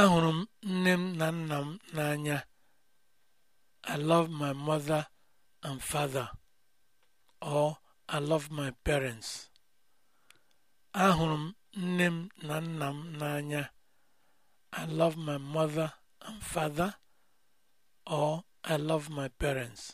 Ahụrụ m nne m na nna m n'anya. I love my mother and father. Or I love my parents. Ahụrụ m nne m na nna m n'anya. I love my mother and father. Or I love my parents.